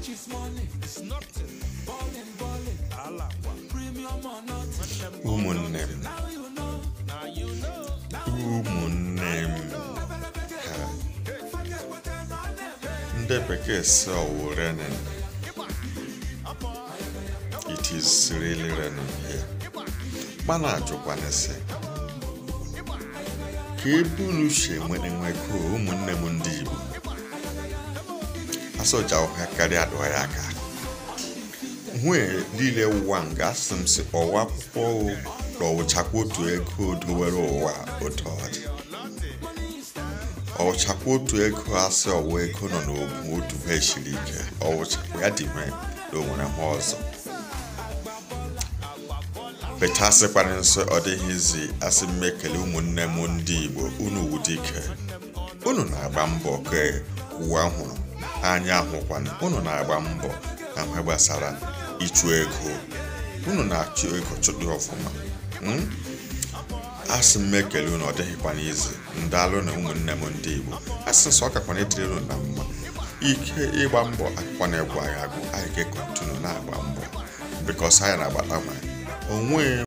ụmụnne m ụmụnne m ha ndị bekee sị ọwụrenin it is really renin here na ajụkwanịsị ka ebe unu si enwe nwekọ ụmụnne m ndị Igbo asọjawụha karịa ya aka nwunye niile ụwa nga asị m si ọwa akwụkwọ ọwụchakwa otu ego dowere ụwa otu ọdị. dị ọwụchakwa otu ego asị ọwa ego nọ n'obu otu ha esiri ike ọwụchakwa ya dị na onwere ha ọzọ bechasịkwara nsọ ọ dịghịzi asị m ụmụnne m ndị Igbo unu wudike unu na-agba mbọ ka ụwa hụrụ anya hụkwana unu na-agba mbọ na mgbe gbasara ịchụ ego unu na-achụ ego chụdị ọfụma hmm? asị m ekele unu ọ dịghịkwa n'izu ndị na ụmụnne m ndị Igbo asị nsọ ọkakwana etiri unu na mma ike ịgba mbọ akụkwa na egwu agha agụ anyị ga-ekontinu na-agba mbọ bikos anyị na-agbata nwaanyị onwe